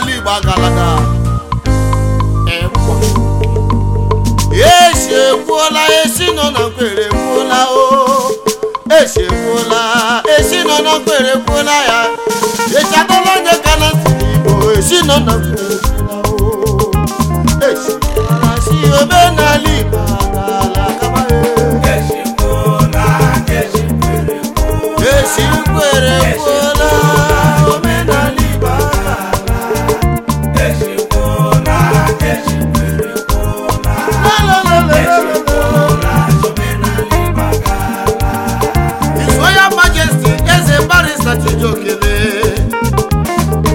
n'ala Igbo agalada esi egbuola esi nọ na nkwere ekwuola o esi egbuola esi nọ na nkwere ya echagola ka na esi nọ na nkwere egbuola o esi ekwuola si Igbo agala e. nkwere ekwuola Ọkachi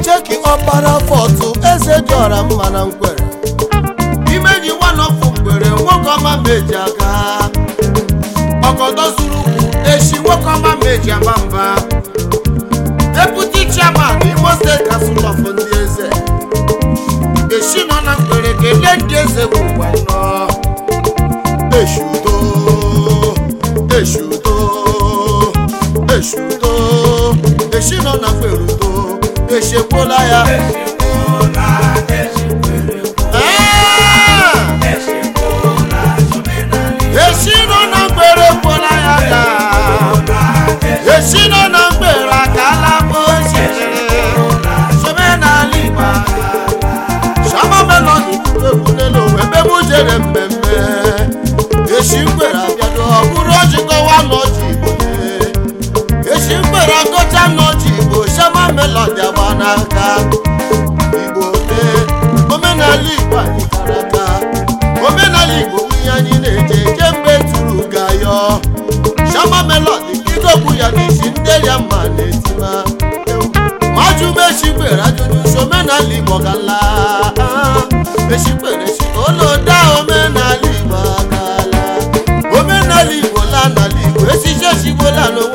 Cheki ọkpara fọtụ eze dịọra mma na nkwere imeji nwanọfụ ngwere nwoke ọma meji aga ọgọdọ zuru ukwu echi nwoke ọma meji aba mba deputy chairman Imo State Council ndị eze echi nọ na nkwere kelee ndị eze kwuru echi nọ na mkperugo echekwuola ya echi nọ na ya ka n melodi agba n'aka igbo tee omenala igbo anyị omenala igbo nwunye anyị na-eje eje mgbe turu gayọ shama melodi idokwu ya n'isi ya na-etima majumechikpere ajụjụ omenala igbo gala mechikpere si omenala igbo agala omenala igbo igbo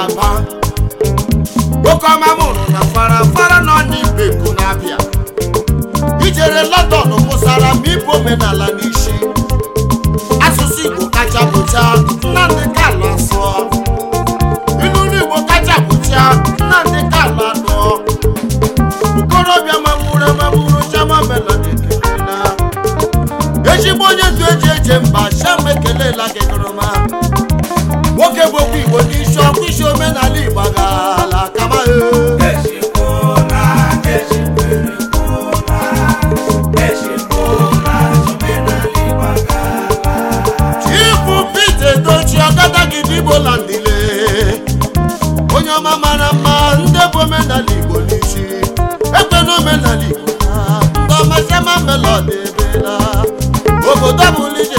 Kalaba nwoke ọma mụrụ na farafara nọ n'Igbo Eku na-abịa ijere London mụsara ma ịbụ omenala n'isi asụsụ Igbo kacha bụcha Nnamdị Kanu asụọ ilu Igbo kacha bụcha Nnamdị Kanu anụọ okorobịa mawuru amawuru chama melodi ezigbo onye ndu eji eje mba sham ekelela gị gụrụma nwoke bụ okwu Igbo omenala Igbo na akaba Chifu Pete Edochi Ọkadagidi Igbo landile onye ọma mara mma ndị bụ omenala Igbo n'isi na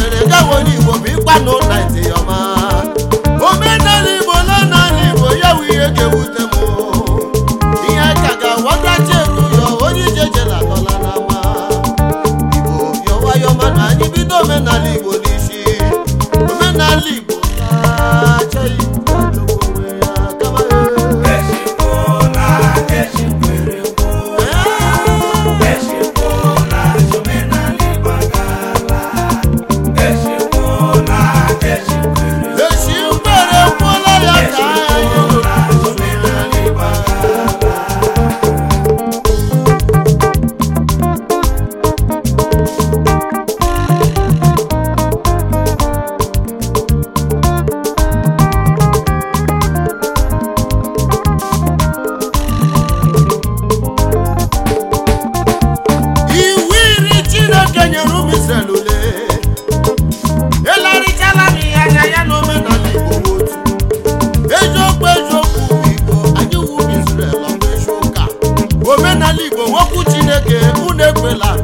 relax